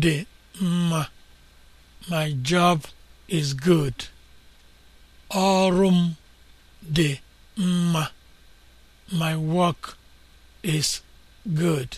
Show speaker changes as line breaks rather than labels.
dị mma my job is good ọrụ m dị mma my work is good